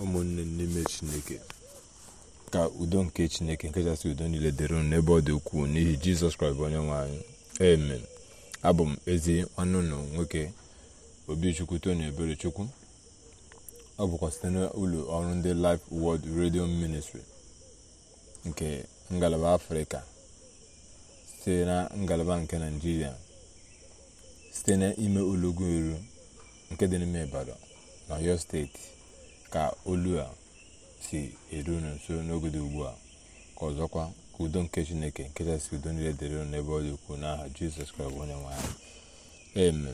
ụmụnne n'ime chineke ka udo nke chineke nke nkachasị udo niile dịrị ụnụ n'ebe ọ dị ukwuu n'ihi jizọs kraịst bụ onye nwanyị amen abụ m ezi ọnụnụ nwoke obichukwu tony eberechukwu ọ bụkwa site n'ụlọ ọrụ ndị Life world Radio Ministry nke ngalaba afrịka site na ngalaba nke naijiria site n'ime ụlọugwu eru nke dị n'ime Ibadan na Ọyọ steeti ka olu a si eru unu nso n'ogede ugbu a ka ọzọkwa ka udo nke chineke nke si udo niile dịrị n'ebe ọ dị ukwuu n'aha jizọs kraịst onye nwanyị anyị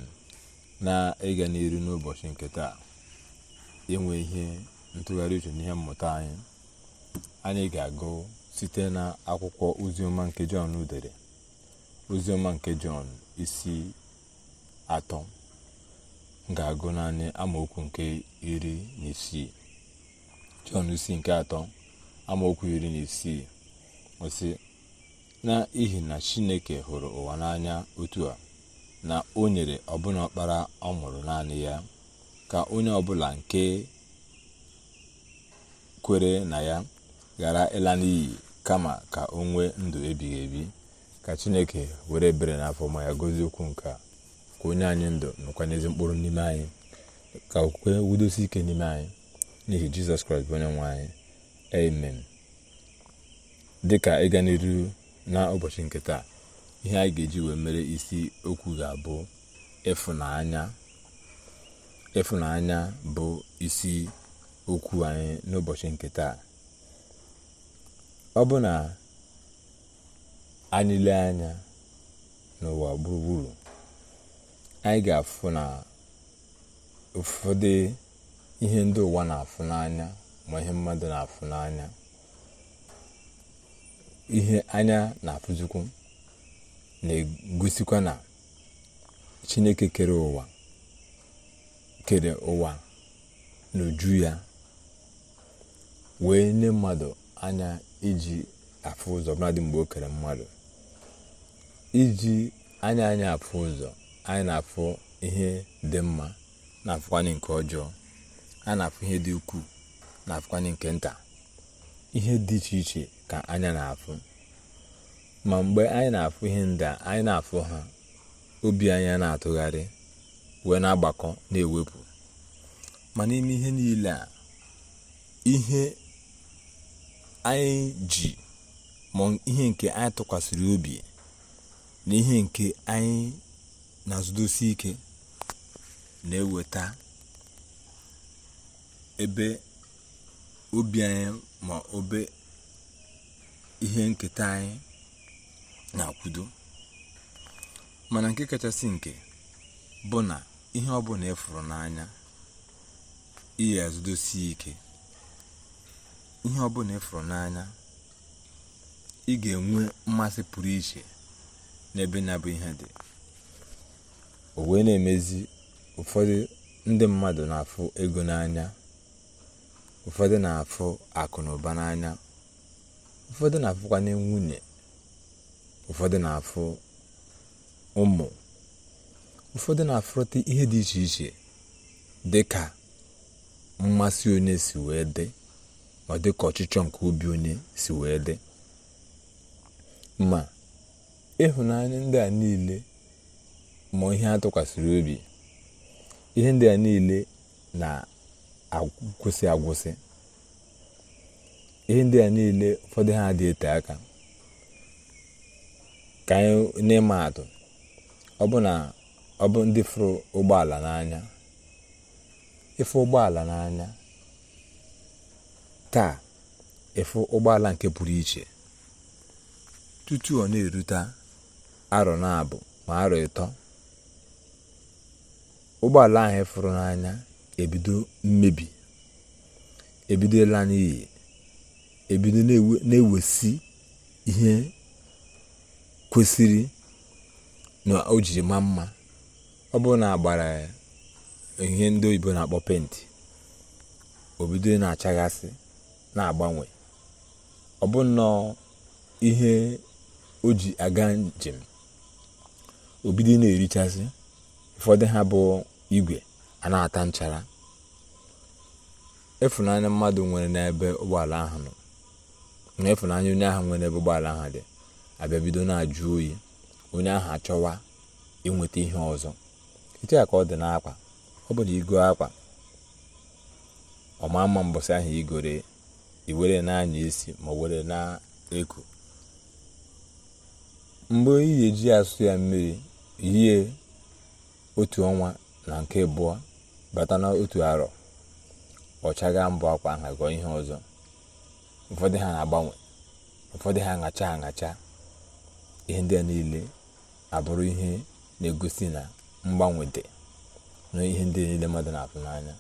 na ịga n'iru n'ụbọchị nke taa inwe ihe ntụgharị uche n'ihe mmụta anyị anyị ga-agụ site na akwụkwọ oziọma nke jọn dere oziọma nke jọn isi atọ ga-agụ naanị amaokwu nke iri na isii jọn isi nke atọ amaokwu iri na isii osi n'ihi na chineke hụrụ ụwa n'anya otu a na o nyere ọbụna ọkpara ọ mụrụ naanị ya ka onye ọbụla nke kwere na ya ghara ịla n'iyi kama ka o nwee ndụ ebighị ebi ka chineke were ebere n'afọ ma ya okwu nke a ka onye anyị ndụ nọkwa n'ezi mkpụrụ n'ime anyị ka okwukwe wudosi ike n'ime anyị n'ihi jizọs kraịst bụ onye nwe anyị amen dị ka ịga n'iru na ụbọchị nke taa ihe anyị ga-eji wee mere isi okwu ga-abụ ịfụnanya ịfụnanya bụ isi okwu anyị n'ụbọchị nke taa ọ bụ na anyị anya n'ụwa gburugburu anyị ga-afụ na ụfọdụ ihe ndị ụwa na-afụ n'anya ma ihe mmadụ na-afụ n'anya ihe anya na-afụzikwu na-egosikwa na chineke kere ụwa kere ụwa n'uju ya wee nye mmadụ anya iji afụ ụzọ ọbụladị mgbe o kere mmadụ iji anya anya afụ ụzọ anyị na-afụ ihe dị mma na-afụkwanye nke ọjọọ anyị na-afụ ihe dị ukwuu na-afụkwanye nke nta ihe dị iche iche ka anya na-afụ ma mgbe anyị na-afụ ihe ndị anyị na-afụ ha obi anyị na-atụgharị wee na-agbakọ na-ewepụ ma n'ime ihe niile a ihe anyị ji ma ihe nke anyị tụkwasịrị obi na ihe nke anyị na nzudosi ike na-eweta ebe obi anyị ma obe ihe nketa anyị na-akwudo mana nke kachasị nke bụ na ihe ọ ọbụla ịfụrụ e n'anya ihe azụdosi ike ihe ọbụla efuru n'anya ị ga-enwe mmasị pụrụ iche n'ebe na-abụ ihe dị o wee na-emezi ụfọdụ ndị mmadụ na-afụ ego n'anya ụfọdụ na-afụ akụ na ụba n'anya ụfọdụ na-afụkwanye nwunye ụfọdụ na-afụ ụmụ ụfọdụ na-afụrụta ihe dị iche iche dị ka mmasị onye si wee dị ma dị ọchịchọ nke obi onye si wee dị ma ịhụnanya ndị a niile ma ihe atụkwasịrị obi ihe ndị a niile na-agwụsị agwụsị ihe ndị a niile ụfọdụ ha dị ete aka ka anyị n'ịma atụ ọbụ ndị fụrụ ụgbọala n'anya ịfụ ụgbọala n'anya taa ịfụ ụgbọala nke pụrụ iche tutu ọ na-erute arọ na abụ ma arọ ịtọ ụgbọala anyị fụrụ n'anya ebido mmebi ebido ịla n'iyi ebido na-ewesi ihe kwesịrị na o jiri ma mma ọ bụrụ na agbara ihe ndị oyibo na-akpọ penti obido na-achaghasị na-agbanwe ọ bụ nnọọ ihe oji ji aga njem obido na-erichasị ụfọdụ ha bụ igwe a na-ata nchara efunanya mmadụ nwere n'ebe ụgbọala ahụ nọ na onye ahụ nwere n'ebe ụgbọala ahụ dị abịa bido na-ajụ oyi onye ahụ achọwa inweta ihe ọzọ etu ya ka ọ dị n'akwa ọ bụrụ igo akwa ọma mma mbọsị ahụ igore iwere na-anya isi ma were na-eku mgbe ị ga-eji asụ ya mmiri yie otu ọnwa na nke abụọ bata n'otu arọ ọchaga mbụ akwa nha ihe ọzọ ụfọdụ ha na-agbanwe ụfọdụ ha aṅacha aṅacha ihe ndị a niile abụrụ ihe na-egosi na mgbanwe dị na ihe ndị niile mmadụ na-afụ n'anya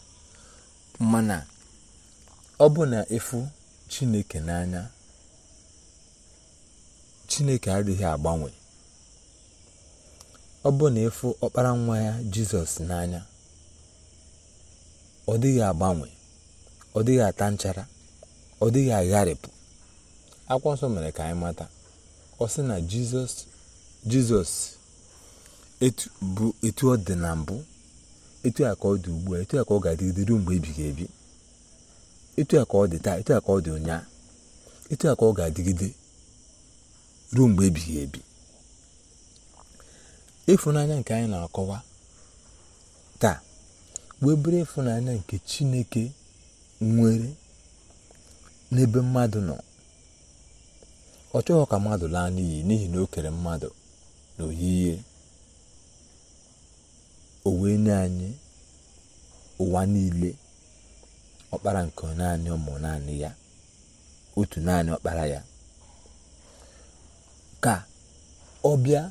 mana ọ bụ na ịfụ chineke n'anya chineke adịghị agbanwe ọ bụ na ịfụ ọkpara nwa ya jizọs n'anya ọ dịghị agbanwe ọ dịghị ata nchara ọ dịghị agharịpụ akwụkwọ nsọ mere ka anyị mata ọ sị na jizọs jizọs bụ etu ọ dị na mbụ etu a ka ọ dị ugbu a etu a ka ọ ga-adịgide ruo mgbe ebighị ebi etu a ka ọ dị taa etu a ka ọ dị ụnyaahụ, etu a ka ọ ga-adịgide ruo mgbe ebighị ebi ịfụnanya nke anyị na-akọwa taa wee bụrụ nke chineke nwere n'ebe mmadụ nọ ọ chọghị ka mmadụ laa n'iyi n'ihi na o kere mmadụ na ihe o nye anyị ụwa niile ọkpara nke naanị ụmụ naanị ya otu naanị ọkpara ya ka ọ bịa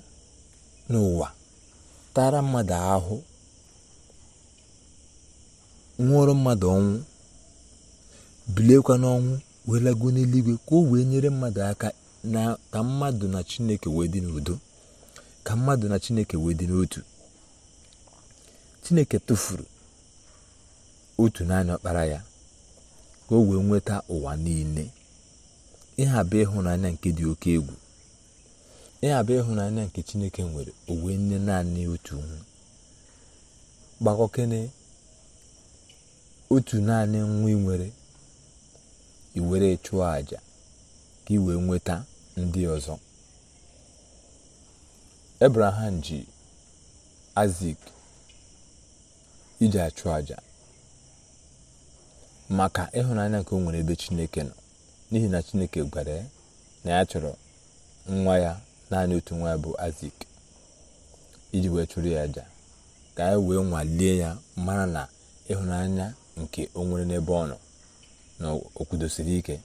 n'ụwa tara mmadụ ahụ nwụọrụ mmadụ ọnwụ biliekwa n'ọnwụ wee lago n'eluigwe ka o wee nyere mmadụ aka na ka mmadụ na chineke wee dị n'udo ka mmadụ na chineke wee dị n'otu chineke tụfuru otu naanị ọkpara ya ka o wee nweta ụwa niile ịha bụ ịhụnanya nke dị oke egwu ya bụ ịhụnanya nke chineke nwere owe nne naanị otu gbakọkene otu naanị nwa ị nwere iwere chụọ àjà ka ị nweta ndị ọzọ ebraham ji azik iji achụ àjà maka ịhụnanya nke o nwere ebe chineke nọ n'ihi na chineke gwara ya na ya chọrọ nwa ya naanị otu nwa bụ azik iji wee chụrụ ya aja ka anyị wee nwalie ya mara na ịhụnanya nke o nwere n'ebe ọ nọ na o ike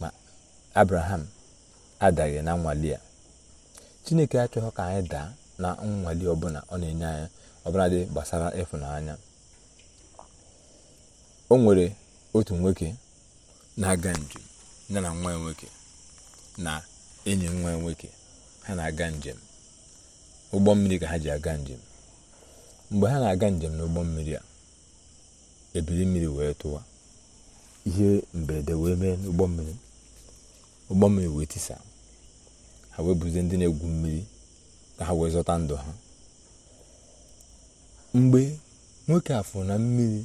ma abraham adaghị na nnwale ya chineke achọghị ka anyị daa na nnwale ọbụla ọ na-enye anya ọbụla dị gbasara ịfụnanya o nwere otu nwoke na-aga njem ya na nwa ya nwoke na enyi nwa nwoke ha na-aga njem ụgbọ mmiri ka ha ji aga njem mgbe ha na-aga njem n'ụgbọ mmiri a ebili mmiri wee tụwa ihe mberede wee mee n'ụgbọ mmiri ụgbọ mmiri wee tisa ha wee buze ndị na-egwu mmiri ka ha wee zọta ndụ ha mgbe nwoke afọ na mmiri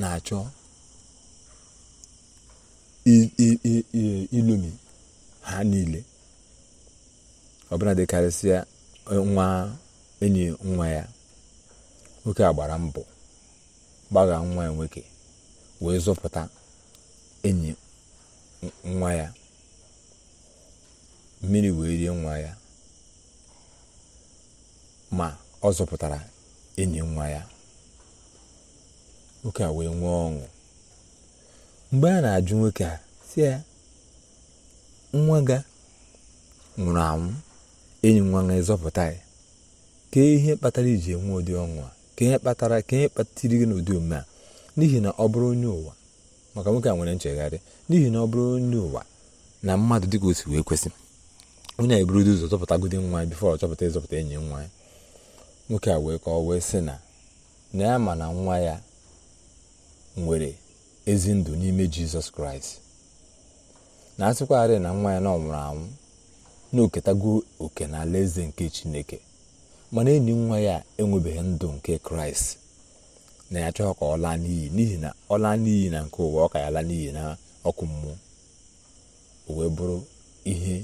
na-achọ ilomi ha niile ọbụla dịkarịsịa e, nwa enyi nwa ya nwoke a gbara mbọ gbaga nwa ya nwoke wee zọpụta enyi nwa ya mmiri wee rie nwa ya ma ọ zọpụtara enyi nwa ya nwoke a wee nwee ọṅụ mgbe a na-ajụ nwoke a si ya nwa ga nwụrụ anwụ enyi nwa ga ịzọpụta ya ka ihe kpatara iji enwe ụdị ọṅụ a ka ihe kpatara ka ihe kpatara gị n'ụdị omume a n'ihi na ọ bụrụ onye ụwa maka nwoke a nwere nchegharị n'ihi na ọ bụrụ onye ụwa na mmadụ dịka osi wee kwesị onye a eburudo ụzọ zọpụtagodi nwa ya bifọ ọchọpụta chọpụta ịzọpụta enyi nwa ya nwoke a wee kọọ wee sị na na ya ma na nwa ya nwere ezi ndụ n'ime jizọs kraịst na asịkwarị na nwa ya na anwụ na-oketago oke na eze nke chineke mana enyi nwa ya enwebeghị ndụ nke kraịst na ya chọọ ka ọ laa n'iyi n'ihi na ọ laa n'iyi na nke ụwa ọ ka ya laa n'iyi na ọkụ mmụọ o wee bụrụ ihe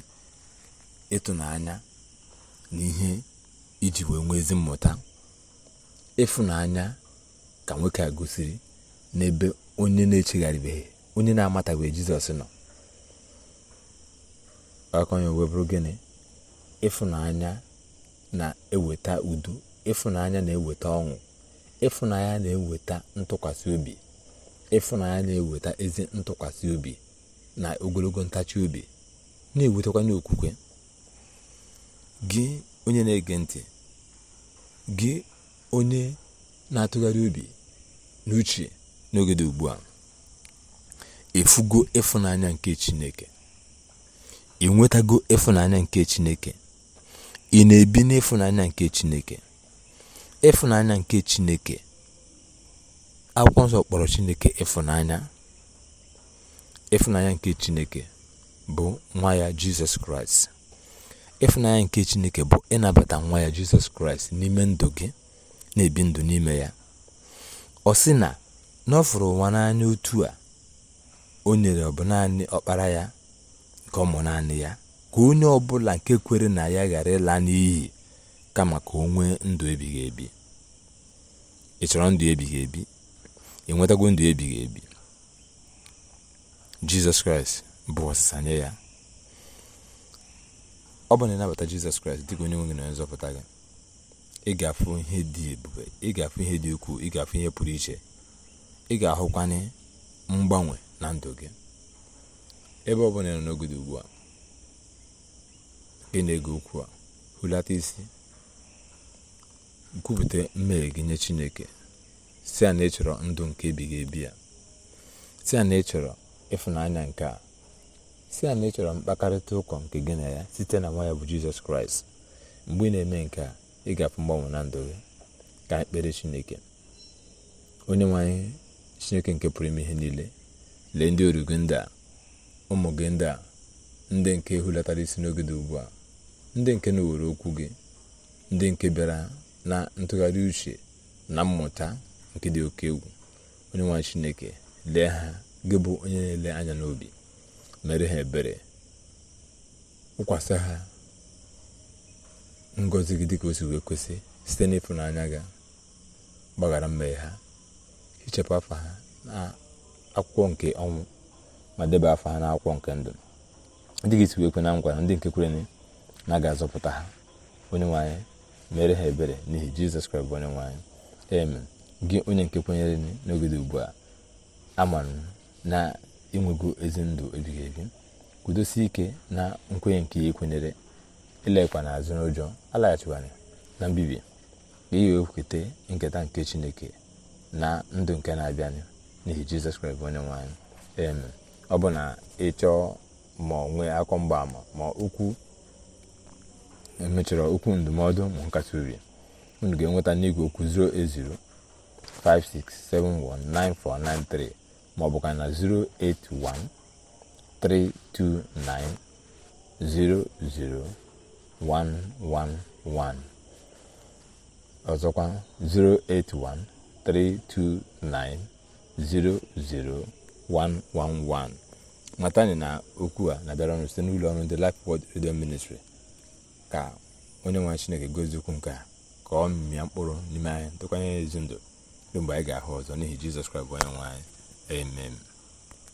ịtụnanya na ihe iji wee nwee ezi mmụta ịfụnanya ka nwoke a gosiri n'ebe onye na-echegharịbeghị onye na-amatabeghị jizọs nọ aka onye wee bụrụ gịnị ịfụnanya na-eweta udo ịfụnanya na-eweta ọṅụ ịfụnanya na-eweta ntụkwasị obi ịfụnanya na-eweta ezi ntụkwasị obi na ogologo ntachi obi na-ewetakwa n'okwukwe gị onye na-ege ntị gị onye na-atụgharị obi n'uche n'oge dị ugbu a efugo ịfụnanya nke chineke ị nwetago ịfụnanya nke Chineke ị na-ebi n'ịfụnanya nke Chineke ịfụnanya nke Chineke akwụkwọ nsọ kpọrọ Chineke ịfụnanya ịfụnanya nke Chineke bụ nwa ya Jizọs Kraịst ịfụnanya nke Chineke bụ ịnabata nwa ya Jizọs Kraịst n'ime ndụ gị na-ebi ndụ n'ime ya ọ sị na n'ọfụrụ nwa n'anya otu a o nyere ọ bụ naanị ọkpara ya ka ọ mụ naanị ya ka onye ọbụla nke kwere na ya ghara ịla n'iyi kama ka o nwee ndụ ebighị ebi ị chọrọ ndụ ebighị ebi enwetago ndụ ebighị ebi jizọs kraịst bụ ọsịsa nye ya ọ bụ na ịnabata jizọs kraịst dịka onye nwe gị na onye nzọpụta gị ị ga-afụ ihe dị ebube ị ga-afụ ihe dị ukwuu ị ga-afụ ihe pụrụ iche ị ga-ahụkwanye mgbanwe na ndụ gị ebe ọ bụla nọ n'ogodo ugbu a ị na-ege okwu a hulata isi kwupụta mmehie gị nye chineke si a na ịchọrọ ndụ nke ebighị ebi ya si a na ịchọrọ ịfụnanya nke a si a na ịchọrọ mkpakarịta ụkọ nke gị na ya site na nwa ya bụ jizọs kraịst mgbe ị na-eme nke a ị ga-afụ mgbanwe na ndụ gị ka ekpere chineke onye nwanyị chineke nke pụrụ ime ihe niile lee ndị origo ndị a ụmụ gị ndị a ndị nke hulatara isi n'oge dị ugbu a ndị nke na owere okwu gị ndị nke bịara na ntụgharị uche na mmụta nke dị oke egwu onye nwanyị chineke lee ha gị bụ onye na-ele anya n'obi mere ha ebere ụkwasị ha ngọzi gị dịka o wee kwesị site n'ịfụnanya gị gbaghara mmehie ha hichapụ afa ha na akwụkwọ nke ọnwụ ma debe afọ ha n'akwụkwọ nke ndụ ndị ga esikwa ekwe na ngwara ndị nke kwere na aga azọpụta ha onye nwanyị mere ha ebere n'ihi jizọs kraịst bụ onye nwanyị. eme gị onye nke kwenyere n'oge dị ugbu a amara na ịnwego ezi ndụ ebighị ebi kwudosie ike na nkwenye nke ya ekwenyere ilekwa n'azụ n'ụjọ alaghachikwara na mbibi ka ihe wee nketa nke chineke na ndụ nke na-abịanụ n'ihi jizọs kraịst bụ onye nwanyị. eme ọ bụ na ịchọọ ma onwe nwee mgbaama ma okwu emechọrọ okwu ndụmọdụ ma nkasi obi unu ga-enweta n'igwe okwu 56719493 maọbụ ka na 08132900111 ọzọkwa 08132900. 111 matani na okwu a na-abịara ọnụ site n'ụlọ ọrụ ndị Life Word redio ministri ka onye nwe Chineke gozie okwu nke a ka ọ mmịa mkpụrụ n'ime anyị ntụkwanye ezi ndụ mgbe anyị ga-ahụ ọzọ n'ihi Jizọs Kraịst onye nwe anyị amen